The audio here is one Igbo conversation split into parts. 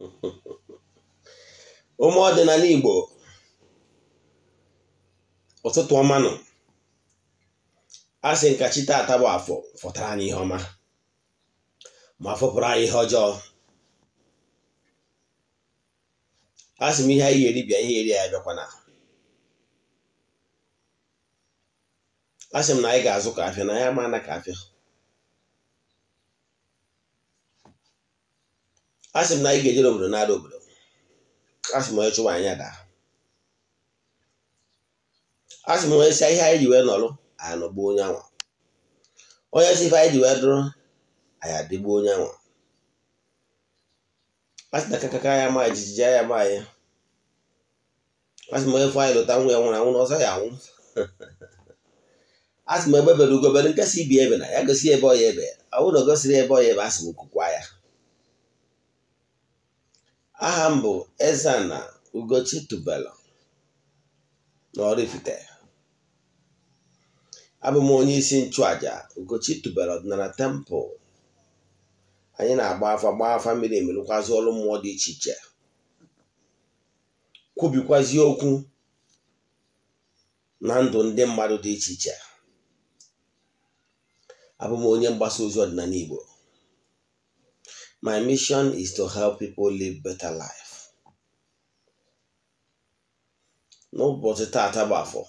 ụmụ ọdịnala Igbo ụtụtụ ọmanụ a sị nkachi taata bụ afọ fọtara anyị ihe ọma ma fọpụrụ anyị ihe ọjọọ Asị m ihe anyị eri bịa ihe eri ya bịakwana Asị m na anyị ga-azụ ka afịa na anyị ma na afịa a sị m na anyị ga-ejere obodo na-ada obodo a sị m onye chụwa anyị ada a sị m onye si ihe anyị ji wee nọrụ anyị gbuo onye anwa onye si ife anyị ji wee dụrụ anyị adịgbuo onye anwa a sị na kakaka ya ma jijiji ya ma ya a sị m onye fụ anyị lụta nwa ya nwụrụ anwụ na ọzọ ya anwụ a sị m ebe bere ugobere nke si ibi ebe na ya gosi ebe ọya ebe ọ bụrụ na o gosiri ebe ọya ebe a sị m kụkwa ya aha m bụ eze na Ugochi Tubelu na Oraifite abụ m onye isi nchụaja Ugochi Tubelu ọdịnala tempụl anyị na-agba afa gba afa mmiri emerụkwazi ọrụ mmụọ dị iche iche kwubikwazi okwu na ndụ ndị mmadụ dị iche iche abụ m onye mgbasa ozi ọdịnala Igbo My mission is to help people live better life. N'ụbọchị taa taba afọ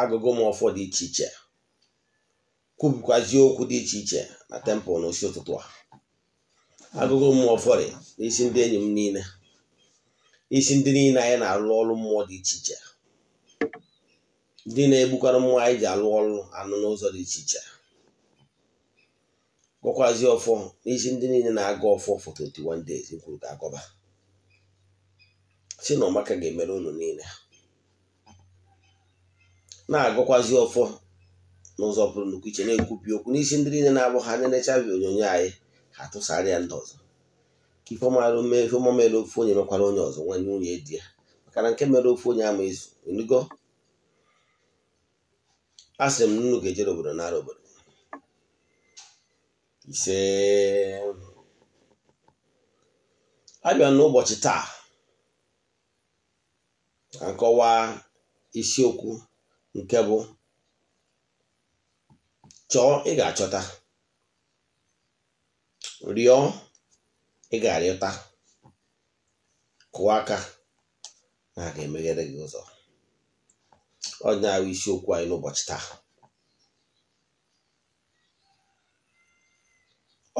agụgụ m ọfọ dị iche iche kwubikwazie okwu dị iche iche na tempụl n'osi ụtụtụ a agụgụ m fọrị na isi ndị enyi m niile isi ndị niile anyị na arụ ọrụ mmụọ dị iche iche ndị na-egbukwara mmụọ anyị ji alụ ọrụ anụ n'ụzọ dị iche iche gọkwazi ọfọ n'isi ndị niile na agụ ọfọ for 21 days kwuru ka agọba si na ọmaka ga-emere unu niile na agụkwazi ọfọ n'ụzọ pụrụ nnukwu iche na-ekwupi okwu n'isi ndị niile na-abụ ha anya nechabi onyonyo anyị ha tụsara ya ndị ọzọ ka ife ọmarụ mee ife ọma mere ofu onye mekwara onye ọzọ nwanye nwunye di ya maka na nke mere ofu onye ama ezu enugo a m nnụnụ ga-ejere obodo nara obodo ise abịa n'ụbọchị taa akọwa isiokwu nke bụ chọọ ị ga-achọta rịọ ị ga-arịọta kụọ aka na a ga-emeghere gị ụzọ ọ na isiokwu anyị n'ụbọchị taa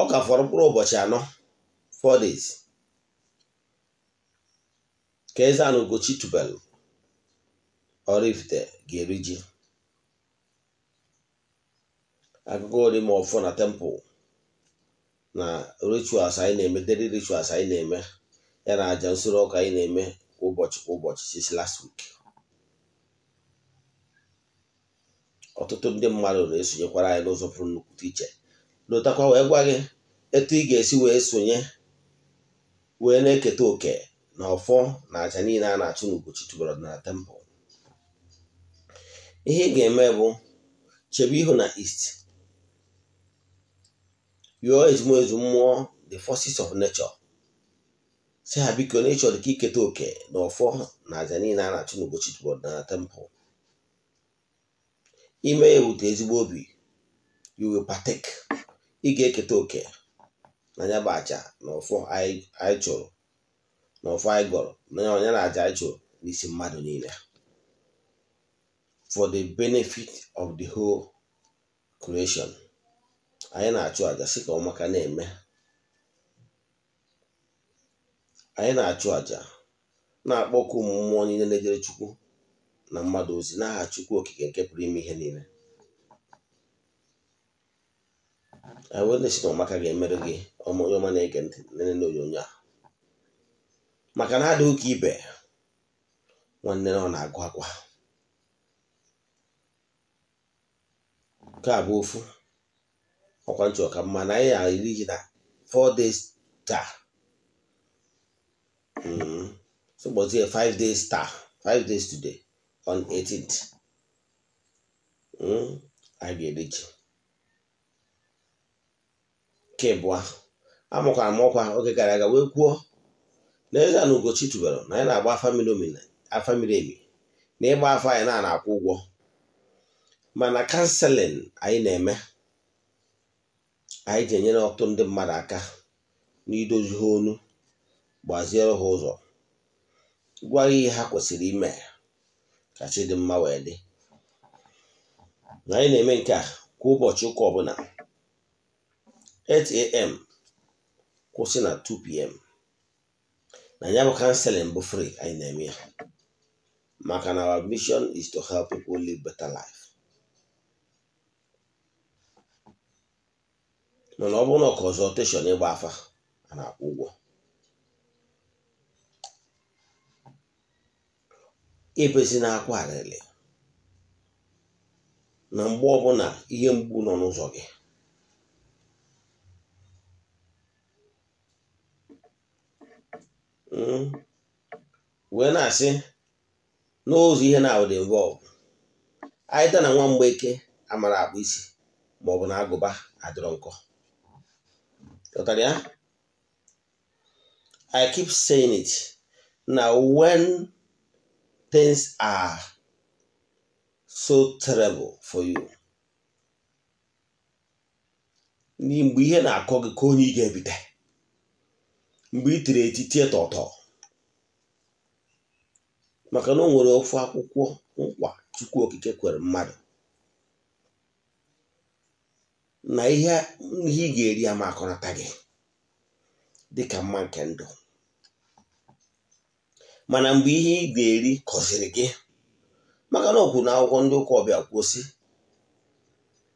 ọ ka fọrọ mkpụrụ ụbọchị anọ 4 days ka eze anụ Ugochi tubelu Oraifite ga-eri ji akụkọ ọ ọfọ na tempụl na rituals anyị na-eme dịrị rituals anyị na-eme ya na aja nsoro ọka anyị na-eme ụbọchị kwa ụbọchị sisi last week ọtụtụ ndị mmadụ na-esonyekwara anyị n'ụzọ pụrụ nnukwu iche lụtakwa wee gwa gị etu ị ga-esi wee sonye wee na-eketa oke na ọfọ na aja niile a na-achụ n'Ugochi chụbara na tempụl ihe ị ga-eme bụ chebe ihu na east yụọ ezumezu mmụọ the forces of nature si ha biko na ịchọrọ ka iketa oke na ọfọ na aja niile a na-achụ n'Ugochi chụbara na tempụl ime ya ebute ezigbo obi you will ị ga-eketa oke na ya bụ aja na ụfụ anyị chụrụ na ụfụ anyị gọrọ na onye na aja anyị chụrụ n'isi mmadụ niile for the benefit of the whole creation anyị na-achụ aja sị ka ọmaka na-eme anyị na-achụ aja na-akpọku mmụọ niile na-ejere chukwu na mmadụ ozi n'aha chukwu okike nke pụrụ ime ihe niile anyị wee na-esi na ọmaka ga-emerụ gị onye ọma na-ege ntị nene onyonyo a maka na adịghị ka ibe nwanne na ọ na-agụ akwa nke a bụ ofu ọkwa nchọ ka mma na anyị eri gị na fọ days taa mm-hmm. sogbozie five days taa five days today on 18th anyị ga-eri ji kebụa amụkwara m ọkwa oge gara aga wee kwuo na eze na Ugochi na anyị na-agba afa miri emi na ịgba afọ anyị na akwụ ụgwọ mana kanselin anyị na-eme anyị ji enyere ọtụtụ ndị mmadụ aka n'idozi ha olu gbaziere ha ụzọ gwa ihe ha kwesịrị ime ka dị mma wee dị anyị na-eme nke a kwa ụbọchị ụka ọbụla 8 a.m. kwụsị na 2 p.m. na ya bụ kanseling bụ fri anyị na-eme ya maka na our mission is to help people live better life mana ọ bụrụ na ịgba afa a na-akwụ ụgwọ na-akwa arịrị na mgbe ọbụla ihe mgbu nọ n'ụzọ gị wee na-asị n'ụzọ ihe na would involve aịta na nwa mgbeke amara akpụ isi maọbụ na agụba adịrọ nkọ ụtara ya I keep saying it na when things are so terrible for you mgbe ihe na-akọ gị ka onye ị ga-ebite mgbe i tiri eti tie tọtọ maka na o nwere ofu akwụkwọ nkwa chukwu okike kwere mmadụ na ihe ị ga-eri ama akọrọta gị dị ka mma nke ndụ mana mgbe ihe ị ga-eri kọziri gị maka na okwu na akwụkwọ ndị ụka ọbịa kwụsị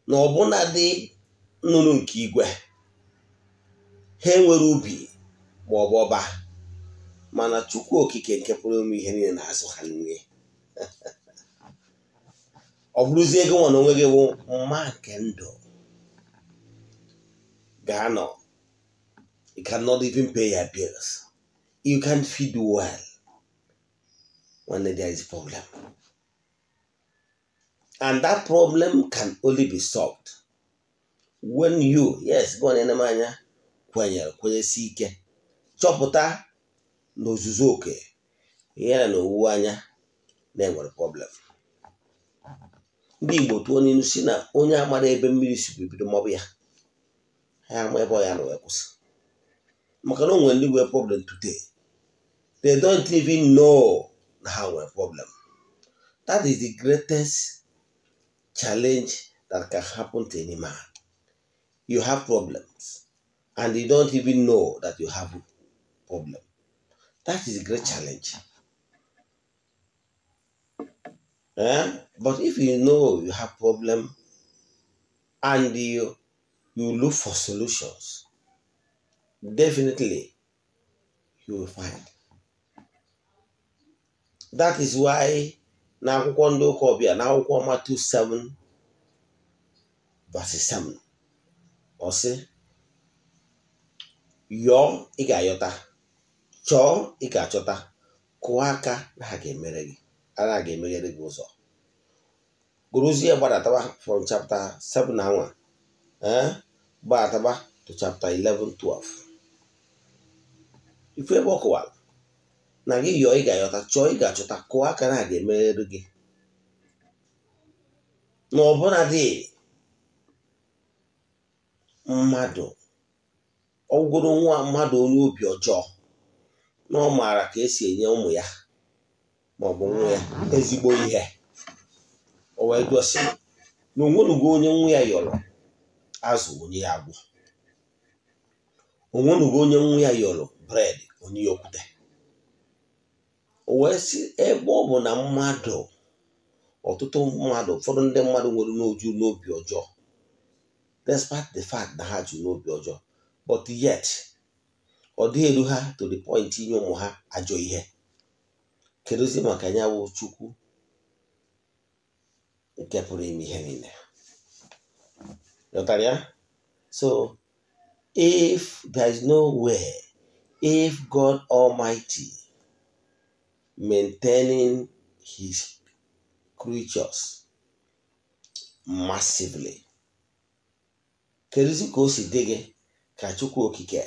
na ọbụna dị nnụnụ nke igwe ha enwere ubi ma ọ bụ ọba mana chukwu okike nke pụrụ ime ihe niile na-azụ ha nri ọ bụrụzie ego nwa na onwe gị bụ mma nke ndụ gaa nọ you cannot even pay your bills you can't feed well when there is a problem and that problem can only be solved when you yes gị ọ na anya kwenyere kwenyesi ike chọpụta na ozuzo oke yana na owuwe anya na-enwere problem ndị Igbo tụọ n'ilu si na onye amara ebe mmiri si bibido maọbụ ya ha ama ebe ọ ya na wee kwụsị maka na o nwere ndị nwere problem today they don't even know na ha nwere problem that is the greatest challenge that can happen to any man you have problems and you don't even know that you have it. problem. That is a great challenge. Eh? But if you know you have problem and you, you look for solutions, definitely you will find. That is why n'akwụkwọ Kobia ụka two 7 verse seven. ọ sị yọọ ị chọọ ị ga-achọta kụọ aka na ha ga-emere gị ana ga-emeghere gị ụzọ gụrụzie gbadatawa from chapter 7 ee eh? gbadataba to chapter 11 12 ifu ebe ọ na gị yọọ ị ga-ayọta chọọ ị ga-achọta kụọ aka na ha ga-emeghere gị na ọbụla dị mmadụ ọgwụrụ nwa mmadụ onye obi ọjọọ na ọ maara ka esi enye ụmụ ya ma ọ bụ nwa ya ezigbo ihe o wee gosi na onwenugo onye nwa ya yọrọ azụ onye ya agwụ onye nwa ya yọrọ bred onye ya okwute o wee si ebe ọ bụ na mmadụ ọtụtụ mmadụ ụfọdụ ndị mmadụ nwere n'oju n'obi ọjọọ despite the fact na ha ju n'obi ọjọọ but yet. ọ dịghị elu ha to the point inye ụmụ ha ajọ ihe kedụzi maka ya bụ chukwu nke pụrụ ime ihe niile ghọtara ya so if there is no way if God Almighty maintaining his creatures massively kedozi ka o si dị gị ka chukwu okike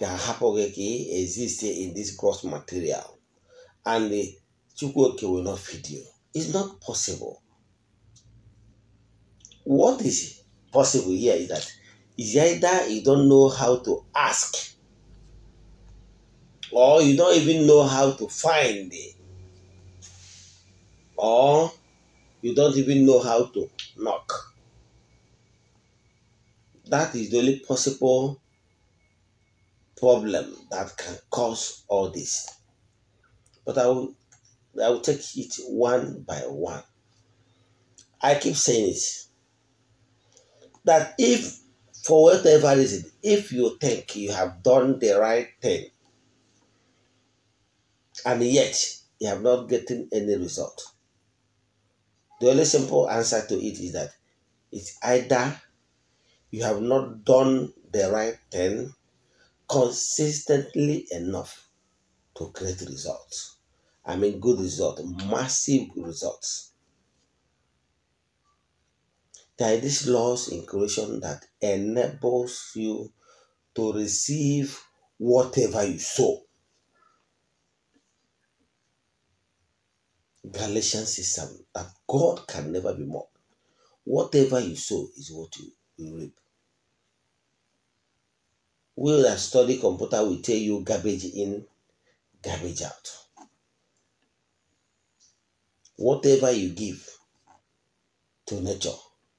ka Hapogeki exists in this gross material and the Chukwuoke will not feed you. It's not possible. What is possible here is that is either you don't know how to ask or you don't even know how to find it or you don't even know how to knock. That is the only possible problem that can cause all this. But I will, I will take it one by one. I keep saying it that if, for whatever reason, if you think you have done the right thing and yet you have not gotten any result, the only simple answer to it is that it's either you have not done the right thing consistently enough to create results. I mean, good results, massive results. There are these laws in creation that enables you to receive whatever you sow. Galatians says that God can never be mocked. Whatever you sow is what you reap we that study computer will tell you garbage in, garbage out. Whatever you give to nature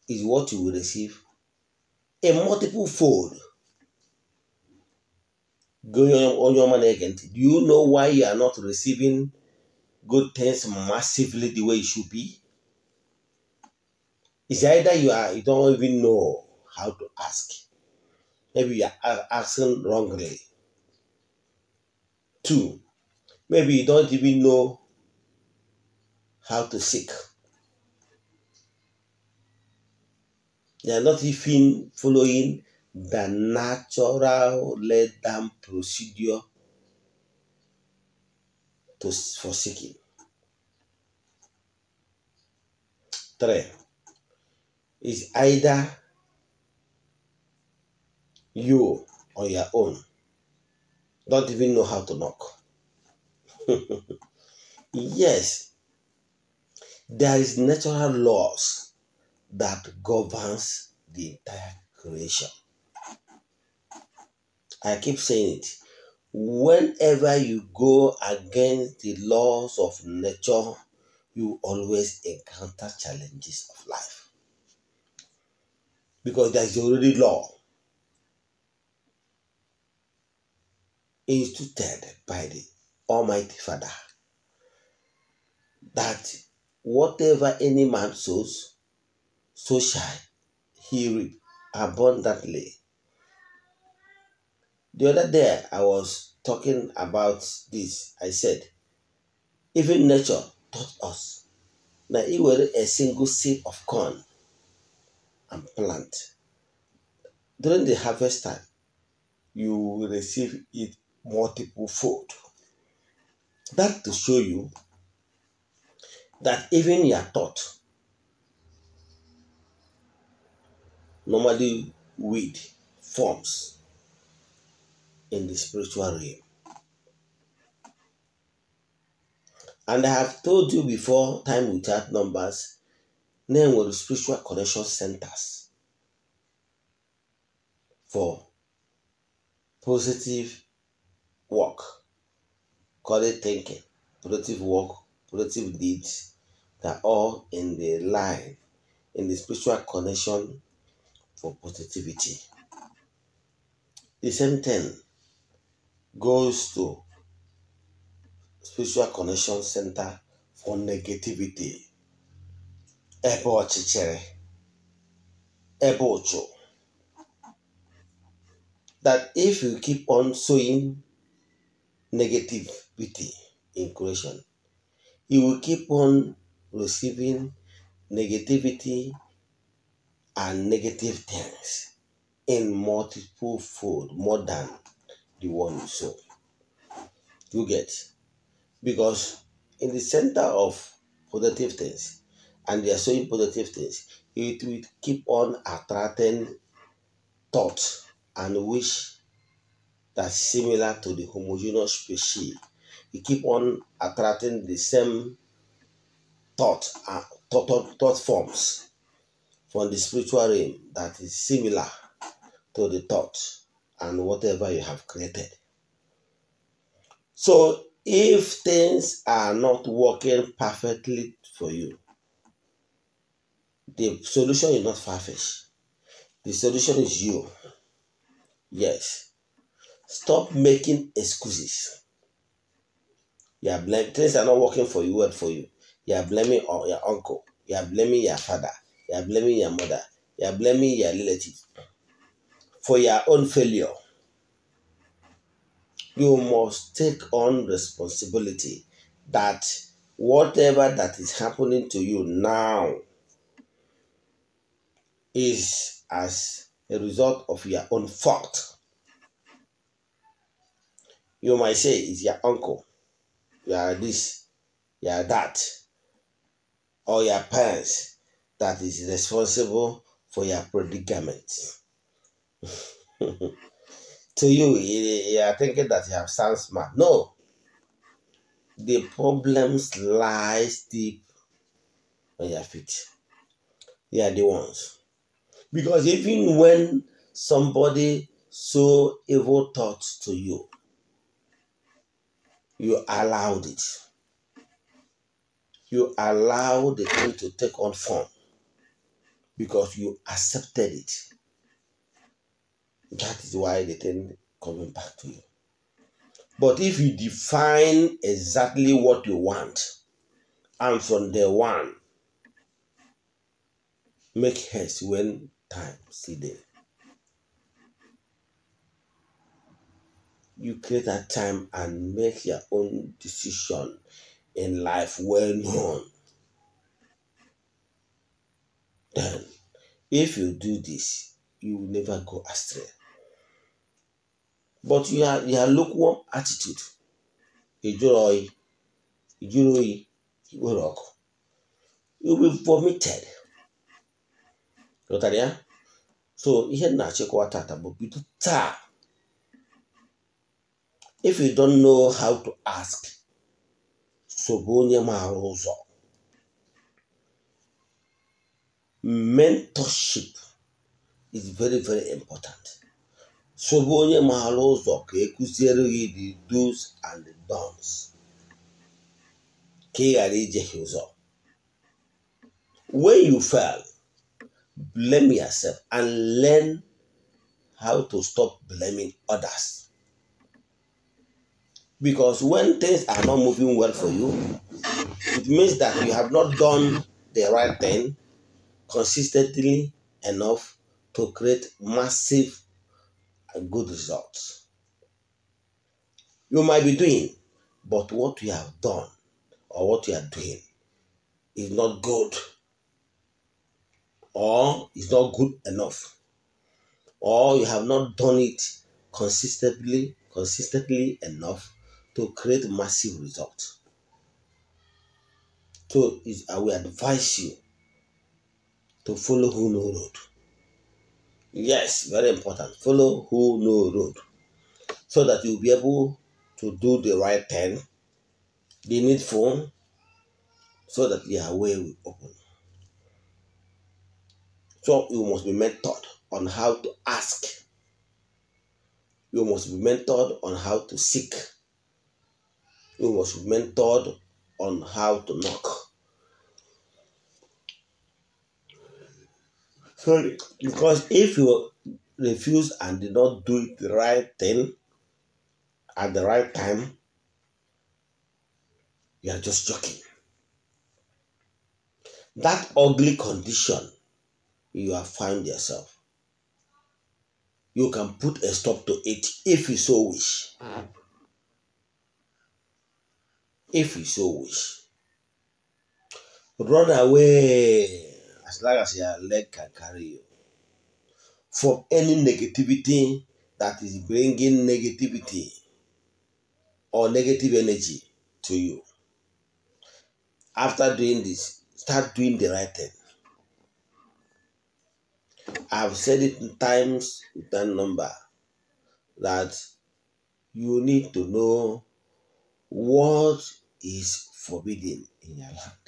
is what you will receive a multiple fold. Go on your money again. Do you know why you are not receiving good things massively the way it should be? It's either you are you don't even know how to ask Maybe you are asking wrongly. Two, maybe you don't even know how to seek. you are not even following the natural laid down procedure to, for seeking. Three is either you on your own don't even know how to knock. yes, there is natural laws that governs the entire creation. I keep saying it. Whenever you go against the laws of nature, you always encounter challenges of life. Because there is already law instituted by the Almighty Father that whatever any man sows, so shall he reap abundantly. The other day I was talking about this. I said, even nature taught us na e was a single seed of corn and plant. During the harvest time, you will receive it multiple fold. That to show you that even your thought, normally weed forms in the spiritual realm. And I have told you before, time without numbers, name were spiritual connection centers for positive work, call it thinking, productive work, productive deeds that all in the life, in the spiritual connection for positivity. The same thing goes to spiritual connection center for negativity. Ebe ọchịchịrị, That if you keep on sowing negativity in creation. You will keep on receiving negativity and negative things in multiple fold more than the one you sow. You get because in the center of positive things and they are sowing positive things, it will keep on attracting thoughts and wish that's similar to the homogeneous species. You keep on attracting the same thought, uh, thought, thought, thought forms from the spiritual realm that is similar to the thought and whatever you have created. So if things are not working perfectly for you, the solution is not far-fetched. The solution is you. Yes. Stop making excuses. You are blaming things are not working for you, What for you. You are blaming your uncle. You are blaming your father. You are blaming your mother. You are blaming your relative for your own failure. You must take on responsibility that whatever that is happening to you now is as a result of your own fault. You might say it's your uncle, you are this, you are that, or your parents that is responsible for your predicament. to you, you are thinking that you have sound smart. No. The problems lies deep on your feet. They are the ones. Because even when somebody so evil thoughts to you, You allowed it. You allowed the thing to take on form because you accepted it. That is why the thing coming back to you. But if you define exactly what you want, and from the one, make haste when time see there. you create that time and make your own decision in life well known. Then, if you do this, you will never go astray. But you are your lukewarm attitude. Ijuru oyi, oyi, ọkụ. You be vomited. Ghọtara So ihe na-achịkwa tata bụ bido taa if you don't know how to ask onye maara mentorship is very very important onye maara ụzọ ka ekụziere gị the do's and ka ị ghara ụzọ when you fail blame yourself and learn how to stop blaming others Because when things are not moving well for you, it means that you have not done the right thing consistently enough to create massive good results. You might be doing, but what you have done or what you are doing is not good or is not good enough or you have not done it consistently consistently enough to create massive results. So I will advise you to follow who know road. Yes, very important. Follow who know road. So that you'll be able to do the right thing, the needful, so that your way will open. So you must be mentored on how to ask. You must be mentored on how to seek who was mentored on how to knock. Sorry, because if you refuse and did not do it the right thing at the right time, you are just joking. That ugly condition you have found yourself, you can put a stop to it if you so wish. Mm. if you so wish. Run away as long as your leg can carry you from any negativity that is bringing negativity or negative energy to you. After doing this, start doing the right thing. I've said it times with that number that you need to know what is forbidden in your land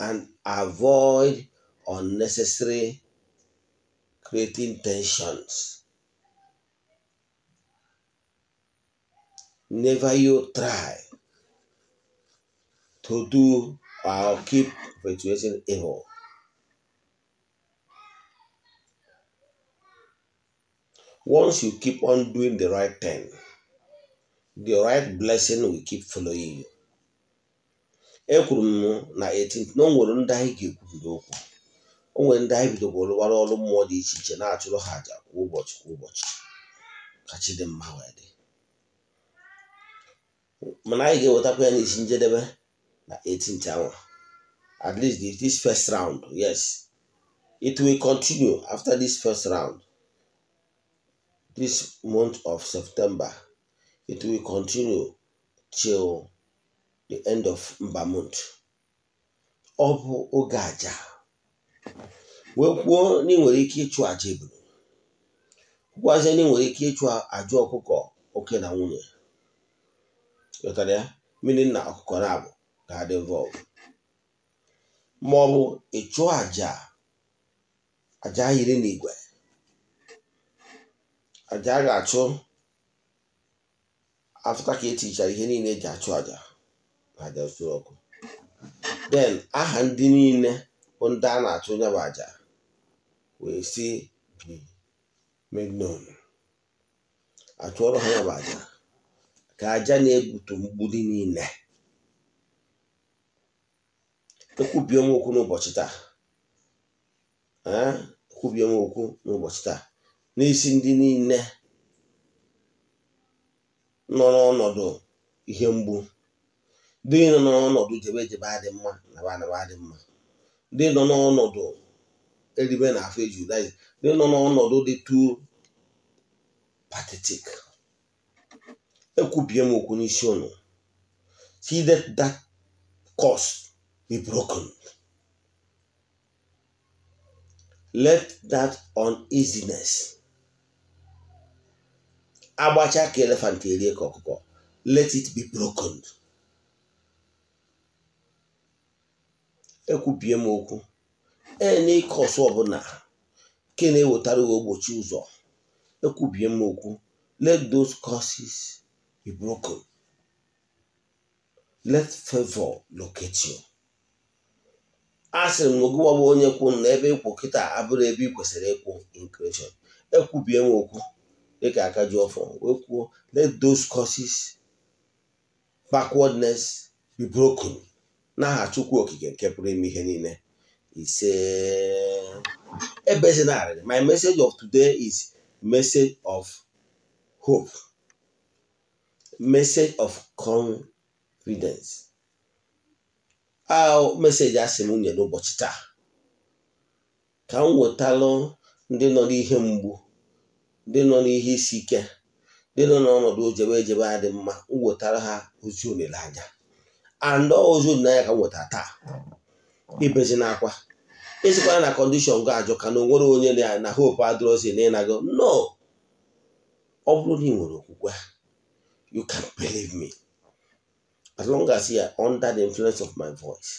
and avoid unnecessary creating tensions. Never you try to do or keep perpetuating evil. Once you keep on doing the right thing, the right blessing will keep following you. ekwuru m na 18 na o nwere ndị anyị ga-ekwubido okwu o nwere ndị anyị bidogoro rụwara ọrụ mmụọ dị iche iche na-achụrụ ha àjà kwa ụbọchị kwa ụbọchị ka chi dị mma wee dị mana anyị ga-ewetakwa ya n'isi njedebe na 18th hour at least this first round yes it will continue after this first round this month of September It will continue till the end of Mbamut. Ọ bụ oge aja wee kwuo na ị nwere ike ịchụ aja ebulu kwukwazịa na ị nwere ike ịchụ aja ọkụkọ oke na nwunye ghọtara ya mmiri na ọkụkọ na abụ ga-adị involve ma ọ bụ ịchụ aja aja yiri n'igwe aja a ga-achụ afta ka etichara ihe niile eji achụ aja aja usoro ọkụ den aha ndị niile bụ ndị a na-achụ onye bụ aja wee si bi atụ achụọrọ ha ya aja ka aja na-egbutu mgbidi niile ekwubie m okwu n'ụbọchị taa ekwubie m okwu n'ụbọchị taa n'isi ndị niile nọ n'ọnọdụ ihe mgbu dị nọ n'ọnọdụ jebe jebe adị mma naba naba adị mma ndị nọ n'ọnọdụ eribe na afọ eji ụda ndị nọ n'ọnọdụ dị tu patetik ekwubie m okwu n'isi unu see that that be broken let that uneasiness agbacha ka elefant erie ka ọkụkọ let it be broken ekwubie m okwu ene ịke ọsụ ọbụla nke na-ewetara gị ogbochi ụzọ ekwubie m okwu let those causes be broken let favor locate you a sịrị m ogụwa onye kwụ na ebe ịkwụ kịta abụrụ ebe ị kwesịrị ịkwụ in creation ekwubie m okwu ka dịka akajuọfọ wee kwuo let those causes backwardness be broken n'aha chukwu okike nke pụrụ ime ihe niile ise ebezinarịrị my message of today is message of hope message of confidence a meseji asị m nye n'ụbọchị taa ka m wetalụ ndị nọ n'ihe mgbu ndị nọ n'ihe isi ike ndị nọ n'ọnọdụ ojebe ejebe adị mma m ha ozi olileanya andọ ozi olileanya ka m taa hmm. ibezi n'akwa ịsịkwara na kọndishọn gị ajụ ka na o nwere onye na hope adịrọzi na ịnago no ọ bụrụ na ị nwere okwukwe you can believe me as long as you are under the influence of my voice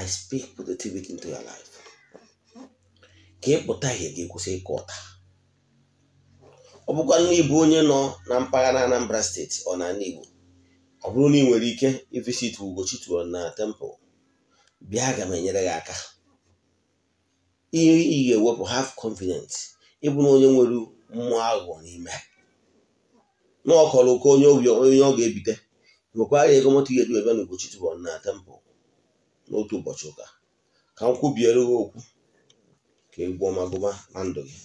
I speak positivity into your life ka pụta ihe gị kwụsị ịkọ ọta ọ bụkwa na onye nọ na mpaghara Anambra steeti ọ n'ala Igbo ọ bụrụ na ị nwere ike ivisit Ugochi tụrụ na tempụl bịa aga m enyere gị aka ihe ị ga-ewepụ haf confident ịbụ na onye nwere mmụọ aghụghọ n'ime na ọ kọrọ onye ọ ga-ebite nwekwara ego moto ga-edu ebe na Ugochi tụrụ na tempụl n'otu ụbọchị ụka ka m kwubiere okwu ka egwu na ndụ gị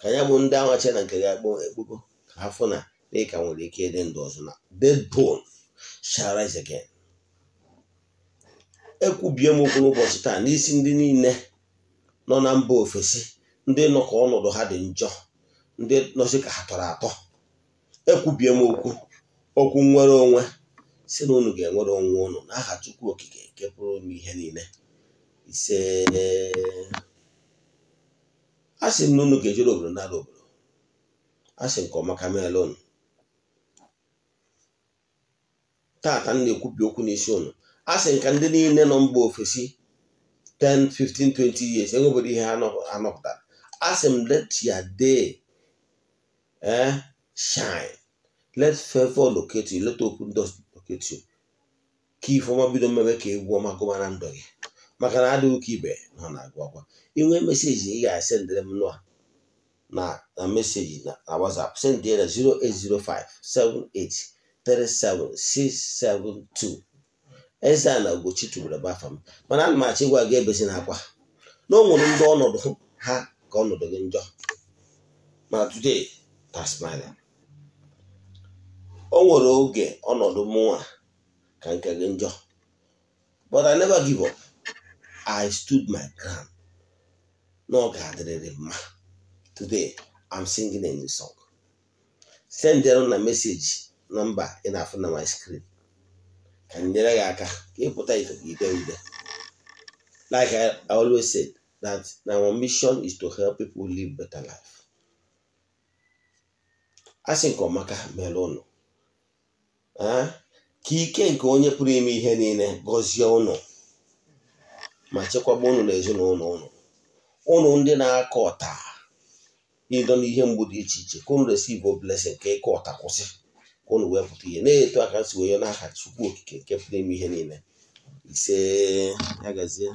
ka ya bụ ndị awache na nke gị akpọ ekpoko ka ha fụ na dịka nwere ike ịdị ndụ ọzọ na dead bone ekwubie m okwu n'ụbọchị taa n'isi ndị niile nọ na mba ofesi ndị nọ ka ọnọdụ ha dị njọ ndị nọzi ka ha tọrọ atọ ekwubie m okwu okwu nnwere onwe si na unu ga-enwere onwe unu n'aha Chukwu Okike nke pụrụ ihe niile ise a sị m na unu ga-ejere obodo n'ala obodo a sị nke ọma ka meela unu taata m na okwu n'isi ụnụ. a sị nka ndị niile nọ mba ofesi 10 15 20 years enwebedo ihe anọpụtara a sị m let your day eh shine let favor locate you let open doors locate you ka ifeọma bido mmebe ka egwu ọma gụma na ndụ gị maka na adịghị ụka ibe ha na-agụ akwa inwe meseji ị ga-esendịrị m nụa na meseji na WhatsApp sendị ya na 08057837672 eze a na ogbochi tubere bafa m mana ana m ga gị ebesi na akwa na o ndị ọnọdụ ha ka ọnọdụ gị njọ ma today tasmania o nwere oge ọnọdụ mụnwa ka nke gị njọ but I never give up. I stood my ground. n'oge adịrịrị ma. Today, I'm singing a new song. Send na a message na in na my screen. Ka nyere gị aka ka ịpụta ite ude. Like I, always said, that our mission is to help people live better life. Asị nke ọmaka ha mere ụnụ. Ah, ka ike nke onye pụrụ ime ihe niile gọzie ụnụ. ma chekwaba ụnụ na ezinụlọ ụnụ ụnụ ndị na-akọ ọta ịdọ n'ihe mgbu dị iche iche ka ụnụ resive blessing ka ịkọ ọta kwụsị ka ụnụ wee pụta ihe na-eto aka si onye n'aha Chukwu okike nke pụrụ ime ihe niile ise